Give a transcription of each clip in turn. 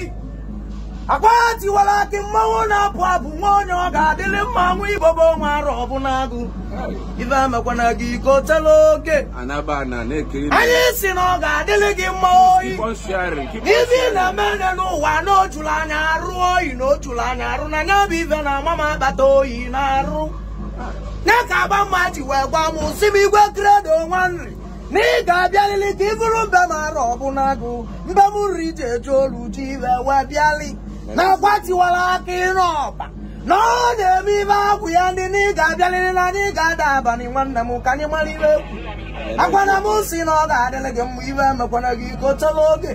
gị akwa tiwara mmanwụ na-apụ abụ nwa onye ọ ga-adịlị mma nwa igbo bụ onwe arụ ọbụla agụ ife amekwana gị iko tela oke anyị si na ọ ga-adịlị gị mma oyi ife ị na-eme nye n'ụwa na ojulu anya arụ oyi na ojulu anya arụ na nya bụ ife na ama m akpata oyi na arụ nya ka agba mma ji wee gwa m si m igwe kredo nwa nri na ị ga-abịalili ka ị bụrụ mbe mara ọbụna agụ mbe m riri ji eji olu ji iwe wee bịali na akwatiwara aka ịrụ ọba na ọ na-eme ibe akwụ ya ndị na ị ga-abịalili na anyị ga-ada abalị nwanne m ka anyị mara iwe ekwu akwana m si na ọ ga-adịrị gị mma iwe emekwana gị gochala oge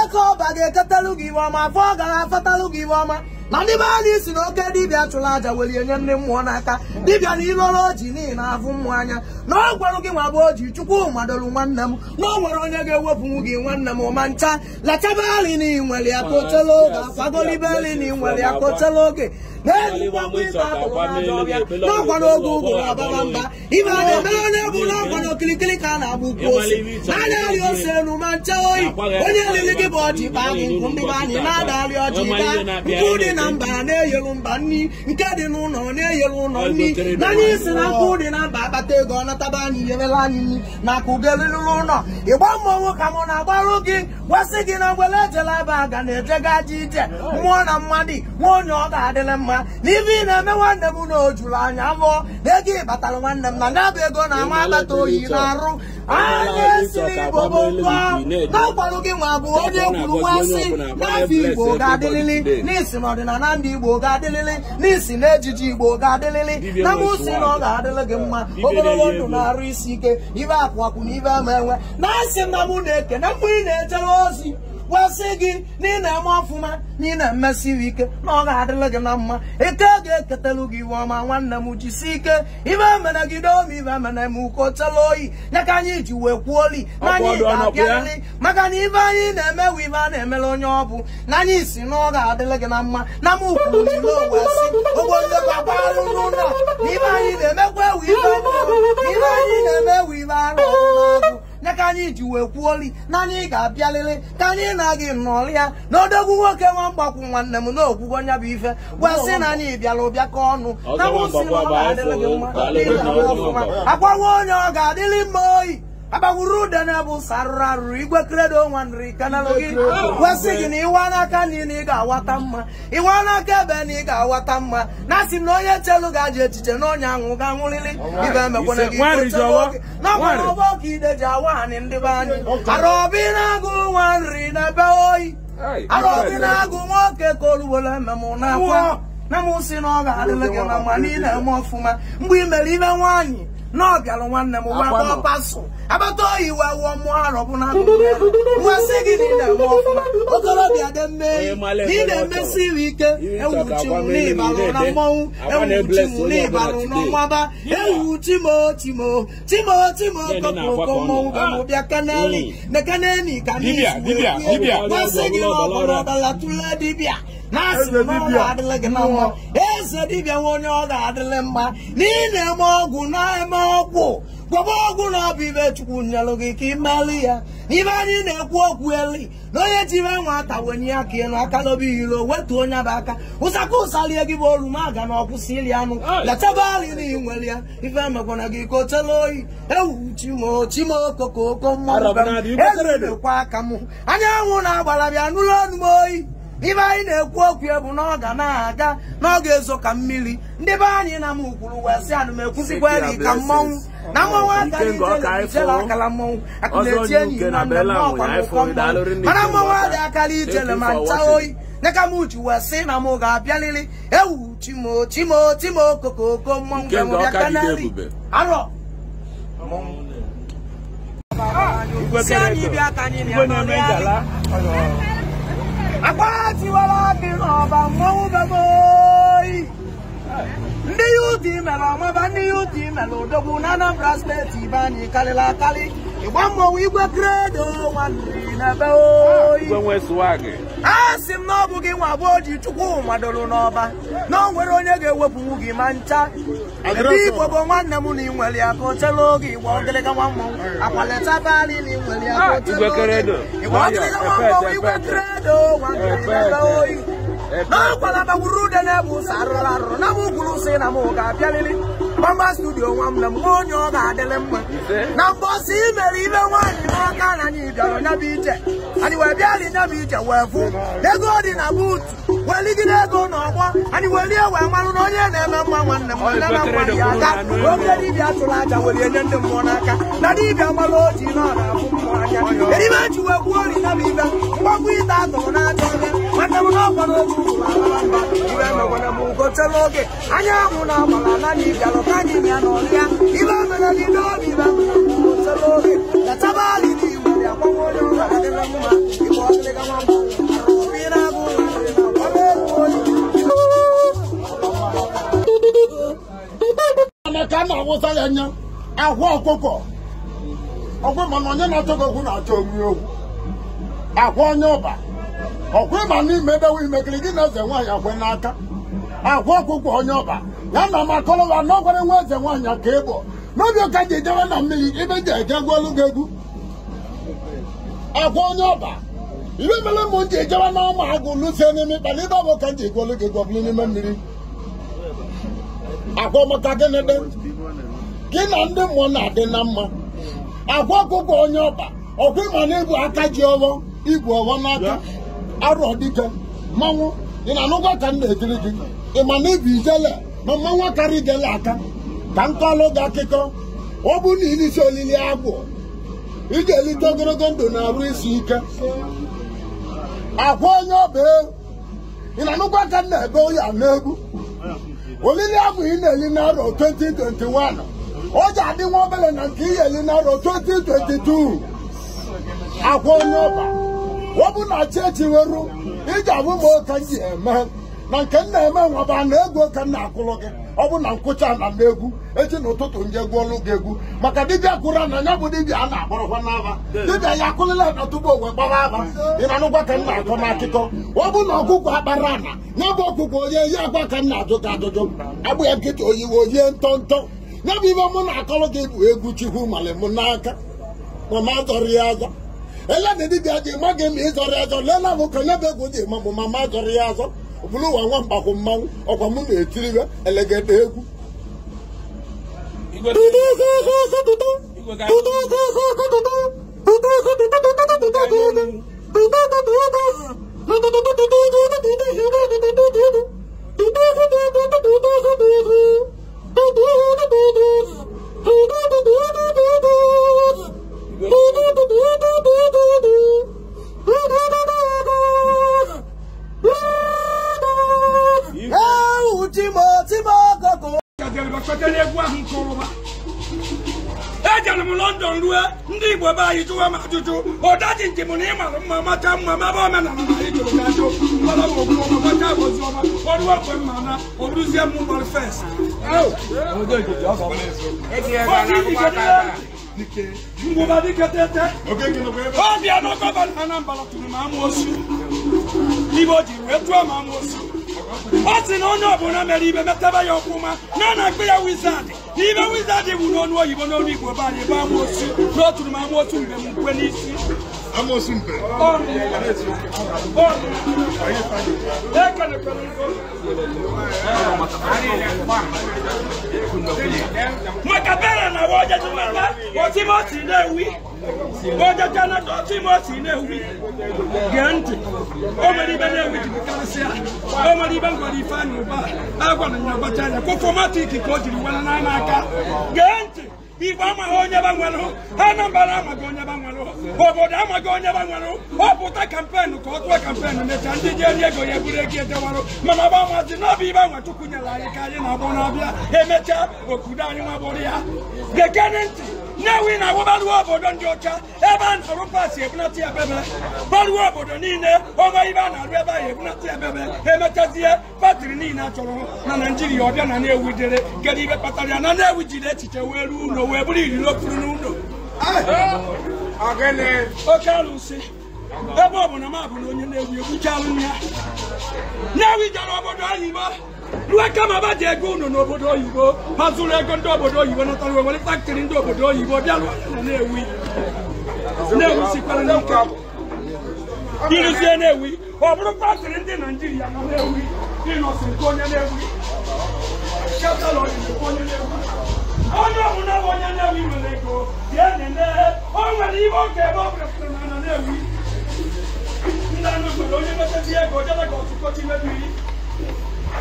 eke ọba ga-eketalu gị iwe ọma afọ ọ gara afatalụ gị iwe ọma na ndị be anyị si na oke dibịa chụrụ aja welie nye ndị mmụọ n'aka dibịa na ịlọrọ oji n'ihi na afụ mmụọ anya na ọ gị nwa bụ oji chukwu madolu nwanne m na ọ nwere onye ga-ewepụnwu gị nwanne m ma ncha lachaba ali na inwere ya oge na inwere ya kochela oge n'ọkwa n'oge na ọbaba na ka a na-agba na na mba na-eyelu mba nri nke dị n'ụlọ na-eyelu ụlọ nni na anyị si na nkụ dị na mba akpata ego ọ nataba anyị nyerela anyị nri na akụ ga-elelụrụ ụlọ ịgba mmọnwụ ka mụ na-agbarụ gị gwasị gị na ngwele ejela ebe a ga na-ejega ji ije mmụọ na mmadụ nwa onye ọ ga-adịrị mma n'ibe ị na-eme nwanne m na o anya afọ na ego ịbatara nwanne m na nyabụ ego na ama agbata oyi na-arụ anya esiri igbo bụa naọgbarụ gị nwa bụ onye kwuru nwansị n'afọ igbo ga-adịlịlị n'isi ọdịnala ndị igbo ga-adịlịlị n'isi na ejiji igbo ga-adịlịlị na mụsi na ọ ga-adịlị gị mma ogologo ndụ na-arụ isi ike ibe akwụakwụ na ibe ama enwe na asị na mụ na-eke na mgbe ị na-ejere mmụọ ozi gwasị gị na ị na-eme ọfụma na ị na-emesiri ike na ọ ga-adịrị gị na mma ike ga-eketelu gị iwe ọma nwanne m jisi ike ibe mere gị n'omi ibe mere m uko tela oyi nyaka ka anyị ji wee kwuo li na anyị ga-abịarịrị maka na ibe anyị na-eme wu ibe a na-emere onye ọ bụ na anyị si na ọ ga-adịrị gị na mma na m kwuru ilo owesi ogbologbabarụ n'ụlọ na ibe anyị na-emekwa ewu ibe ọhụrụ na ibe anyị na-eme ewu ibe arụ ọhụrụ na ka anyị ji wee kwuoli na anyị ga-abịalele ka anyị na-agị nnọọlụ ya na odogwu nwoke nwa mgbakwu nwanne m na ogwugo bụ ife gwasị na anyị bịara ụbịa ka ọnụ na nwụsị nwa akwawa onye ọ ga adịlị mma oyi agbagwuru ude na-ebu ụsa arụrụ arụrụ igwe kredo nwa nri kanalụ gị kwesị gị na n'aka nri na ị ga-awata mma ịwa n'aka ebe na ị ga-awata mma na asị na onye chelu ga je echiche na onye anwụ ga-anwụrịrị ibe emekwana gị nakwana ọbọ ka ide ji awa anyị ndị be anyị arọbi na-agụ nwa nri na ebe oyi arọbi na-agụ nwoke ka olugbola ememụ n'akwa na m si na ọ ga-adịlị gị na mma na eme ọfụma mgbe ị mere ime nwaanyị na ọbịara nwanne m nwa ọpaso abata oyi we wụọ mụọ arọ bụ na nwa si gị na ị ọfụma okorobịa dị mme na ị na-emesi iwe ike ewuchi m n'ịbalụ na mmọnwụ ewuchi m n'ịbalụ na ọmaba ewu timo timo timo timo kọpụrụkọ mmọnwụ bụ ah! mụ bịa kaneli mm. na kaneli ka n'izu nwa si gị na ọbụla ọbala tụlee dibịa na asị m n'ọrụ adịla gị na nwa sị dibịa nwe onye ọ ga adịrị mma na ị na-eme ọgwụ na-eme ọgwụ gwọba ọgwụ na ọ bụ ibe chukwu nyelụ gị ka imelụ ya n'ibe anyị na-ekwu okwu eli na onye jire ata wenye ya ka ịnụ aka n'obi iro wetu onye bụ aka ụsaka ụsalie gị bụ oruma ga na ọkwụsị iri anụ letaba alị na inwere ya ife emekwana gị ka o oyi ewu okoko oko mmanụ ekwa aka m anyanwụ na-agbara bịa nụrụ ọnụ m oyi ibe anyị na-ekwu okwu ebu na ọ ga na-aga na n'oge ezo ka mmiri ndị be anyị na m kwuru wee sị ana m ekwuzikwa eri ka mmọnwụ na mmanwụ aka ijele akala mmọnwụ aka na-eti enyi na mmemme ọkwa n'ụkọ mmọnwụ mana mmọnwụ adị akala ijele ma ncha oyi nyeka m uchi wee sị na m ga-abịaliri ewu chimo chimo chimo kokoko mmọnwụ ka m bịa kanari arọ si anyị bịa ka anyị na-anọrị anyị apá tiwa lábìrán ọba mọ́wú gbogbo yìí ndị UDM ọmọba ndị UDM odogwu n'Anambra steeti Ibe anyị karịla akarị ịgba mmọnwụ igwe kredo asị m na ọ bụ gị nwa abụọ ji chukwu n'ọba na ọ nwere onye ga-ewepụwu gị ma ncha ebe nwanne m na ịnwere ya ka o chere oge igba ogịlịga igwe kredo ah, bagburu ude na arụrụ arụrụ na m gwuru ụsọ na ga-abịalili Mama studio nwam na mmụọ onye ọ ga-adịlị mma na mbọsị imere ibe nwaanyị n'aka na anyị bịara ya bụ ije anyị wee bịa dị nya bụ ije wee fụ ego dị na buutu wee ligide ego n'ọgbọ anyị wee lie wee marụ na onye na-eme mma nwanne m nne na nwa dị aka oge dibịa tụrụ aja were nye ndị mmụọ n'aka na dibịa gbara oji na ọ na-afụ mmụọ anya eribe ji wee gwuo ori na bụ ibe mgbagwo ite atụrụ n'aja ebe nwanne m n'ọkwa n'oge ugwu ala mba ibe akwa ọkụkọ ọgwụ mana onye na-achọghị na-achọ omi okwu akwa onye ọba gị na-eze nwaanyị akwe n'aka akwa ọkụkọ onye ọba ya na makọrọwa na ọgwara nwa eze nwaanyị ka n'obi ụka ji na mmiri ibe egwu olu egwu akwa onye ọba ibe mere m ji na ụmụ agụ lụsie n'ime ịkpana ibe ọbụ ka ji egwu olu mmiri gị na ndị mmụọ na-adị na mma agwa ọkụkọ onye ọba ọkwa ịma na-ebu aka ji ọghọ ibu ọghọ n'aka arụ ọdịka mmanwụ ị na-anụkwa ka m na-ekiri gị ị ma na ibu ijele ma mmanwụ karị gele aka ka m kọlụ gị akụkọ ọ bụ na ilisi olili agbụ ị ga-elite ogologo ndụ na-arụ isi ike akwa onye ọba e, ị na-anụkwa ka m na-ebe oya n'egwu olili agbụ ị na-eli n'arọ 2021 ọ ji adị nwa obere na nke iyeli narọ 2022 akwa onye ọba ọ bụ na chechi weru iji abụ m oke m ji eme na nke m na-eme nwaba na egwu ka m na-akụrụ gị ọ bụ na nkụcha na m egwu echi ụtụtụ nje gụọlụ gị egwu maka dibịa kụrụ na ya bụ dibịa a na-akpọrọkwa n'aba dibịa ya akụlịla na tupu owe gbara aba ị na-anụkwa ka m na-akọ n'akụkọ ọ bụ na ọkụkọ akpara ana ya bụ ọkụkọ onye ya agwa ka m na-ajụ gị ajụjụ agbụ ya nkịta oyiwe oyi ntọ ntọ ya bụ ibe mụ na-akọrọ gị bụ egwu chukwu mali mụ n'aka ma ma zọrọ ya azọ ele na dibịa dị ma gị ma ịzọrọ ya azọ lela m ka nyebe egwu dị ma bụ ma ma zọrọ ya azọ ọ bụrụ ụwa nwa mgbakwu mmanwụ ọkwa mụ na-etiriwe elegede egwu Igwe ọjọlẹ egwu ahụ nke ọrụba ejere m london rue ndị igbo be anyị jụwa m ajụjụ ụdaji njem na ịmarụ mma macha mma maba omenala na anyị jụrụ gajụ mgbara ogwu ọma gbacha ozi ọma ọrụwa mgbe mma na oruzie m mgbara fest ngwụba dịka tete ọbịa na gọvanọ anambra tụrụ m amụosu ibe o jiri wee tụọ m amụosu osi na onye ọbụla mere ibe metaba ya ọkwụma na na mkpe ya wizard ibe wizard bụ n'ọnụ oyibo n'ọnụ igbo banyị bụ amaosu n'oturu m amaosu mgbe m nkwe n'isi amosu mpe maka bera na woje tumata otimoti na-ewi woje kanada otimoti na-ewi gee ntị o ibe na-ewi jibikarịsịa o nwere ibe ngwara ifeanyị ụba a gwara ya anya kwụkwọ ka o jiri were n'aka gee ntị igbo amaghị onye gbanwelụ anambra amaghị onye gbanwelụ obodo amaghị onye gbanwelụ ọ pụta kampeenụ ka ọ tụọ kampeenụ mecha ndị ji eri ego ya eburu ego ejewarụ mana gbanwazi n'ọbụ igbe anwa chukwu nyere anyị ka anyị na-agbọ n'abịa emechaa okudo anyị nwabụrụ ya gekene ntị nyewi na awụbaruo obodo ndị ọcha ebe e e a na-arụ paasị ebunata ebebe baruo obodo niile ọma ibe a na-arụ ebe ahụ ebunata ebebe emechazie patiri niile a na e naijiria ọbịa na na-ewu dere kedu ibe kpatara ya na na-ewu jiri echiche wee ruo ụlọ wee bụrụ iriri okpuru n'ụlọ eh? oke alụsị ebe ọ na m abụ na onye na-ewu egbuchalụ ya na-ewu jere obodo ahụ igbo luaka ma ba je ego unu n'obodo oyibo ma zụrụ ego ndị obodo oyibo natara wee were faktori ndị obodo oyibo bịa lụọ na-ewi na-ewi sikwara n'ike ịrụzie na-ewi ọ bụrụ faktori ndị naijiria nọ na-ewi ịnọsi nke onye na-ewi onye ọbụla bụ onye na-ewi nwere ego bịa nene o nwere ihe oge ebe ọ bụla pụtara na na-ewi ndị anụ nwere onye nwetazi ego jere ka ọtụkọchi mebiri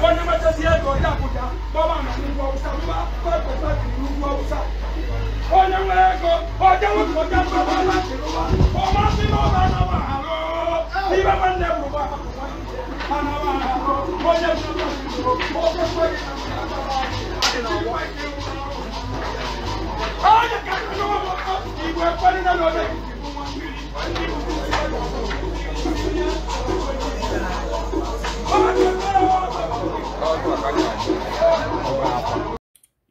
wọ́n ní mẹ́tẹ́ sí ẹ̀dọ̀ ọjà àbújá bọ́ọ̀mà àmàlí ìlú ọ̀wúsá wíwá pẹ́ẹ́pẹ́ pẹ́ẹ́pẹ́ ìlú ọ̀wúsá. ó ní wọ́n ẹ̀kọ́ ọjọ́ wọn kò jẹ́ pé wọ́n láti ló wá ọmọ sí lọ́ọ̀bà náà wà á lọ. bí bá wọn lẹ wò wá àná wà á lọ ó yẹ kí wọ́n ti lò ó pé pé ìlànà àti ìwà ìdí